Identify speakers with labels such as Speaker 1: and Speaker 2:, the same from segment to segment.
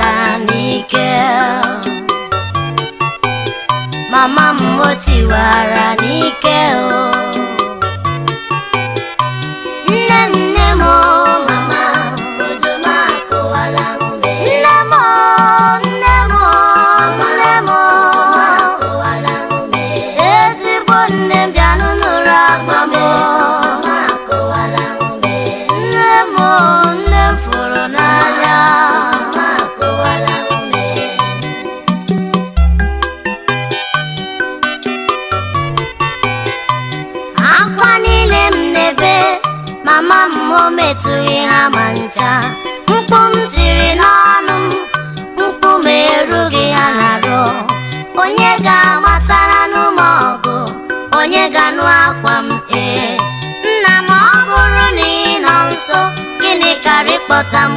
Speaker 1: para níkẹ́. Màmá mu ó ti wàrà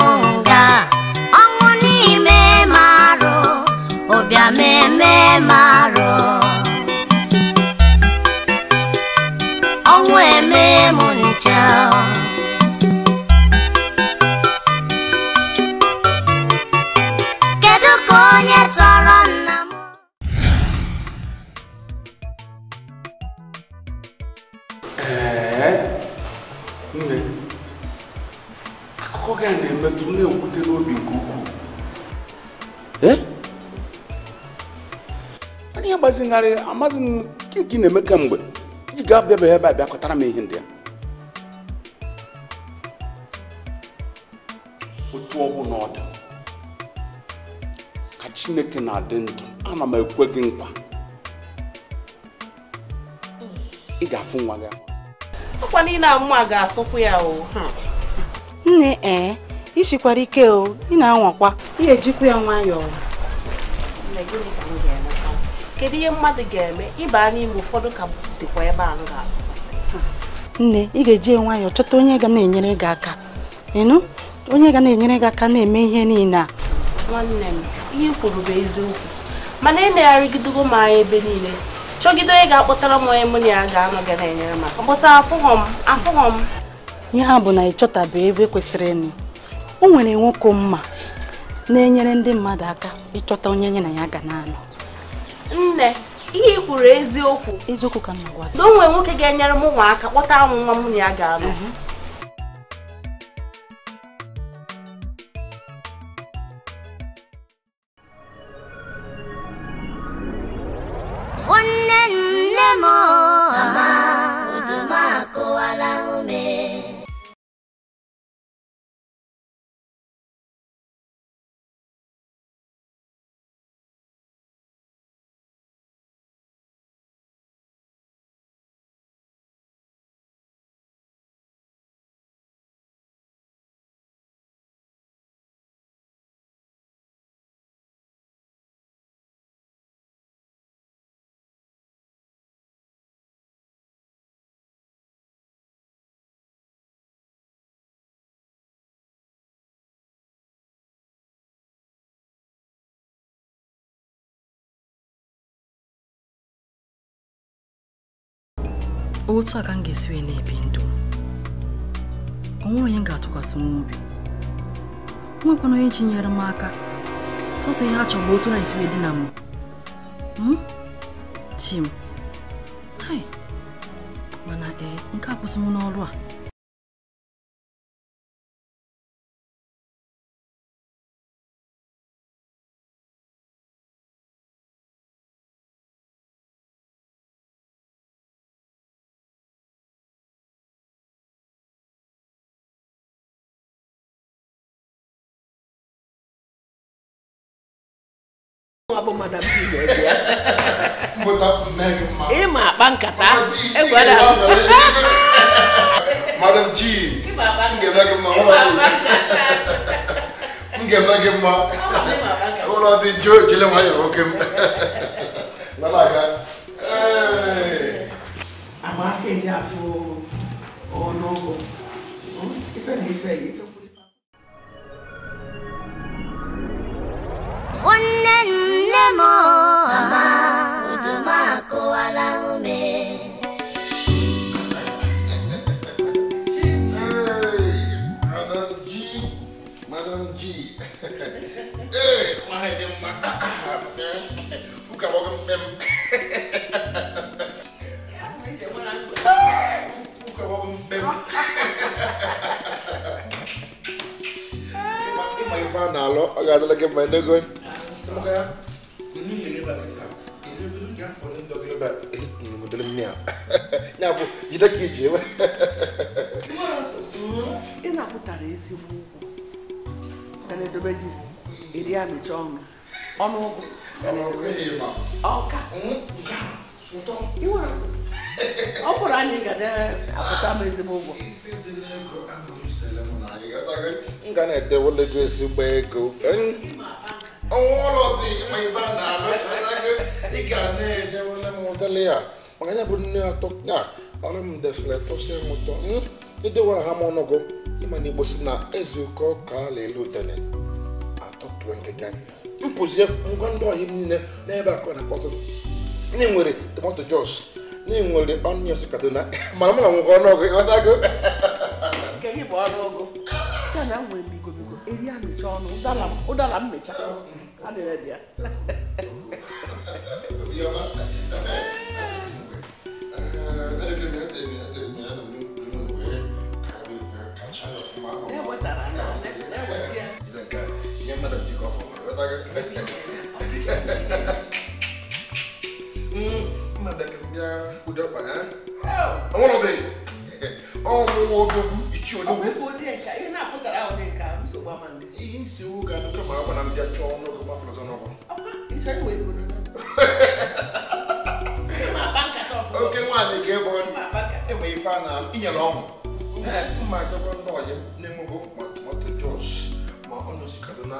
Speaker 1: munga ọnwụ n'ime marụ ụbịa meme marụ ọnwụ eme m ncha
Speaker 2: akpazigharị amaghị m nke na-eme kemgbe iji gaa bịabeghị ebe a bịakọtara m ihe ndị a otu ọ bụla ọ dị ka chineke na-adị ndụ ana m ekwe gị nkwa ị ga-afụ nwa gị
Speaker 3: ọkwa niile a mma ga-asụkwu ya o nne ee isikwara ike o ị na-anwakwa ị ga-ejikwa ya nwayọọ kedu ihe mmadụ ga-eme ịba n'ime ụfọdụ ka dịkwa ebe ahụ ga-asọpụsị nne ị ga-eji nwayọọ chọta onye ga na-enyere gị aka ịnụ onye ga na-enyere gị aka na-eme ihe niile a nwanne m ihe kwuru bụ eziokwu mana ị e na-arịgidego m anya ebe niile chọgide onye ga-akpọtara m onye mụ na ya ga-anọ ga na-enyere m aka mkpọta afụghọ m afụghọ m ihe a bụ na ịchọtabe ebe e kwesịrị ịnị o nwere nwoke mma na-enyere ndị mmadụ aka ịchọta onye nye na ya ga na-anọ nne ihe ị kwuru eziokwu eziokwu ka na-agwa o nwere nwoke ga-enyere m ụmụaka kpọta anwụ nwa m na ya ga-alụ mhm. otu a ka m ga-esi wee na-ebi ndụ m onwe onye ga-atụkwasị m obi nwekwana onye ji nyere m aka sọsọ ihe a chọrọ otu na esi wee dị na m hmm? chi m mana ee eh, nke a kwụsị m n'ọrụ a
Speaker 1: ịma akpa nkata
Speaker 2: egwara gị mma
Speaker 1: na mo mama ujuma akụwala ume
Speaker 2: hey, my dear madam, who can welcome them? Who can welcome them? Ima ife a na-alụ, ọ ga-adịla gị ekpuchi ọnụ ọnụọgụ ọ bụrụ anyị ga na-apụta ah, m ezigbo ụgwọ m ga na-edewele gị ezigbo ego ọnwa ụlọ dị ma ife a na-alụ ị ga na-edewele m ụdịrị ya maka ya bụ nne atọ ya ọrụ m desịrị tụsị ụtọ idewere ha m ọnụgụ ịma na igbo na ka a pụọ nkịta m pụzie ngwa ndị ọhịa niile n'ebe akụ na akpọtụ ndị nwere tomato jos ndị nwere onions na mana mụ na nwoke ọnụọgụ ọgwụ ụdara mmecha na-enwego ma tomato jos ma ọ nọzi kaduna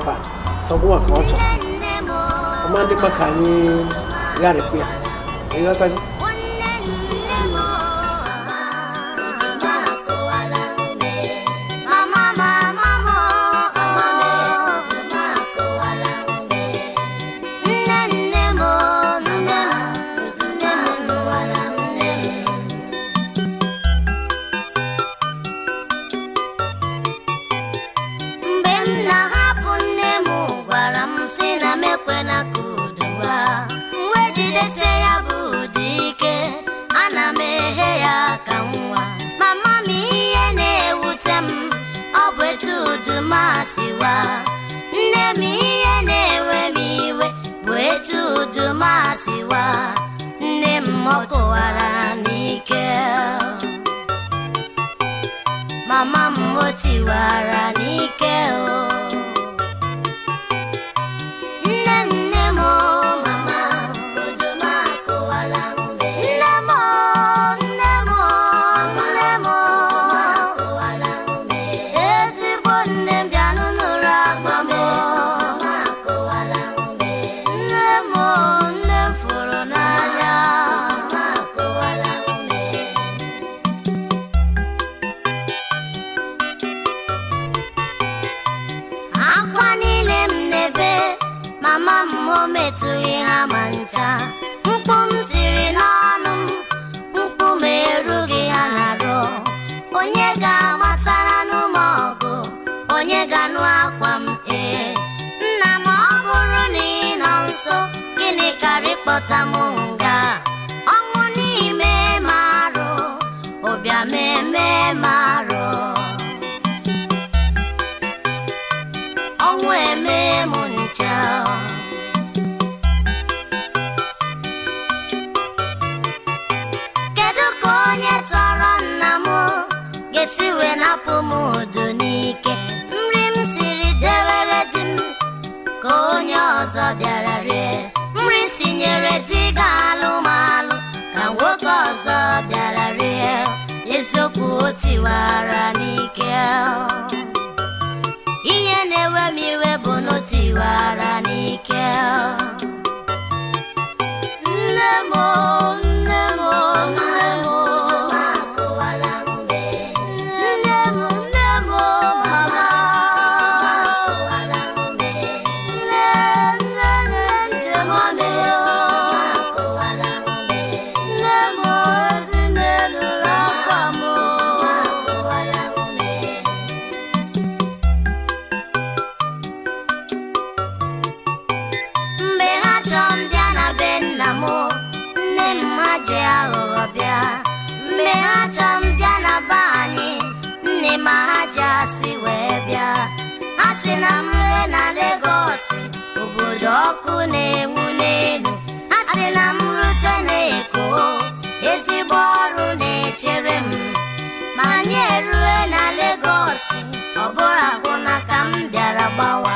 Speaker 1: nefa sɔgbɔn kan tɔ o man di ma ka
Speaker 3: ni yari kuya
Speaker 1: Guarani ¡Vamos! eziokwu otiwara n'ike ihe na-ewe m iwe bụ na otiwara n'ike nne m acha m bịa na be anyị nne ma ha ji asị wee bịa ha si na m ree na Legọs obodo ọkụ na-enwu n'elu ha si na m rute na-eko ezigbo ọrụ na-echere m ma anyị erue na Legọs ọ bụrụ akwụna ka m bịara gbawa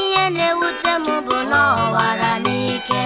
Speaker 1: ihe na-ewute m bụ na ọ wara n'ike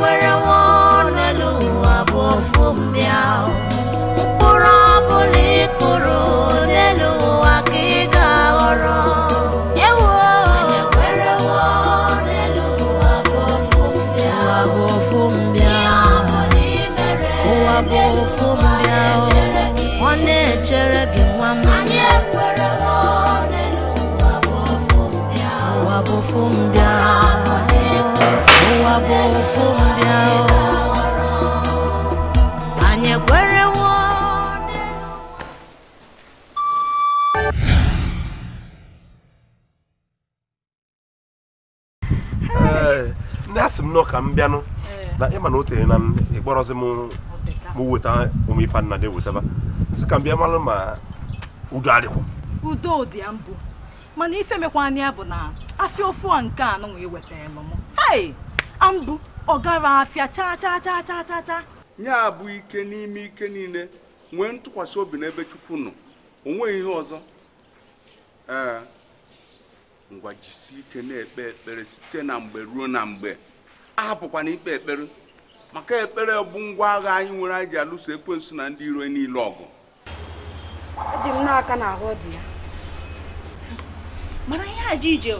Speaker 3: where
Speaker 2: m nọ ka m bịanụ eh. na ịma na o tere na m ịkpọrọzi m weta ụmụ ife dị wetaba sị ka m bịa mara ma udo adịkwa
Speaker 3: udo dị ya mbụ mana ife mekwa anya bụ na afịa ofu a nke anụ wee wetara m m hai ambụ ọ gara afịa chaa chaa chaa chaa ike n'ime
Speaker 2: ike niile nwee ntụkwasị obi n'ebe chukwu nọ onweghị ihe ọzọ ee eh, ngwa jisi ike na-ekpe ekpere site na mgbe ruo na mgbe ahapụkwana ikpe ekpere maka ekpere bụ ngwa agha anyị nwere anyị ji alụso ekwensu na ndị iro niile ọgụ
Speaker 3: eji m n'aka na ahụ dị ya mana ihe a ije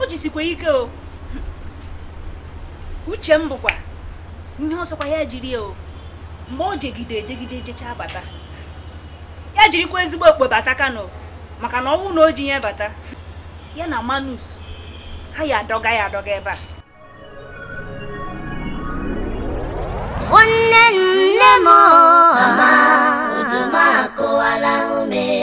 Speaker 3: o jisikwa ike o uche m bụkwa ihe ọsọkwa ya jiri o mgbe o jegide ejegide jechaa bata ya jirikwa ezigbo okpe bata kano maka na ọnwụ na o ji ya bata ya na manus ha ya adọga ya adọga ebe a
Speaker 1: nwanne nne m ọma uju m akụwala ume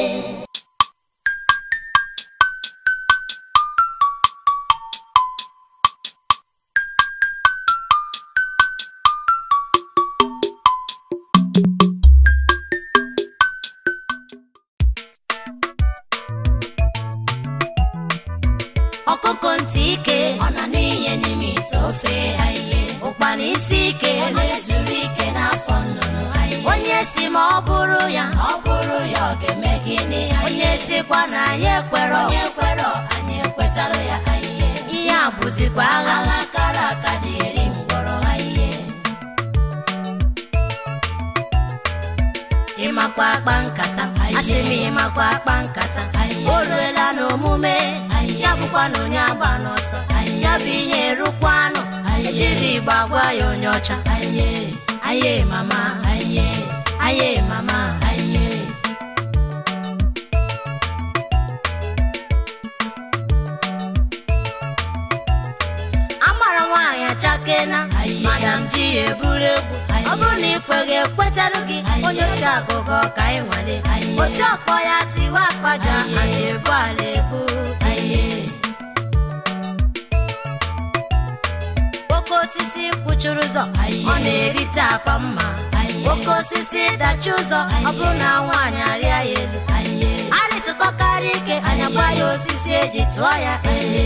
Speaker 3: si ma ọ bụrụ ya ọ bụrụ ya ọ ga-eme gịnị onye sikwa na anyị ekwerọ onye ekwerọ anyị ekwetara ya ihe ihe a bụzikwa agha agha kara aka dị eri mkpọrọ ha e. ịmakwa akpa nkata e. asị m ịmakwa akpa nkata e. o ruela n'omume ya bụkwa na onye agba n'ọsọ ya bụ ihe rụkwanụ ejiri igba agwa ya onye ọcha aye mama A mama, nwanyị Amara nwaanyị achakena madam ji eburu egwu ọ bụrụ na ikweghị ekwetarụ gị onye osi agụgụ ka ị nwale otu ọkpọ ya tiwe akpaja anyị ebu ala ebu oke osisi kwụchuru ụzọ ọ na-erite akpa mma oke osisi dachi ụzọ ọ bụrụ na nwaanyị arịa ya elu arịsịkọkarịa ike anya gba ya osisi eji tụọ ya ihe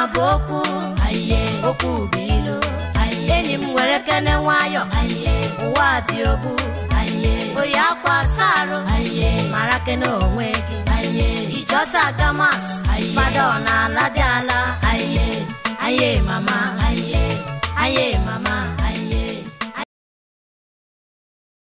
Speaker 3: a bụ okwu okwu bụ ilu enyi m nwere kene nwayọ ụwa dị obu oyi akwa asa mara kene onwe gị iji ọsọ aga ọ na-ala dị ala aye mama Aye,
Speaker 1: mama.